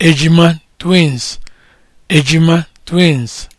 ejima twins ejima twins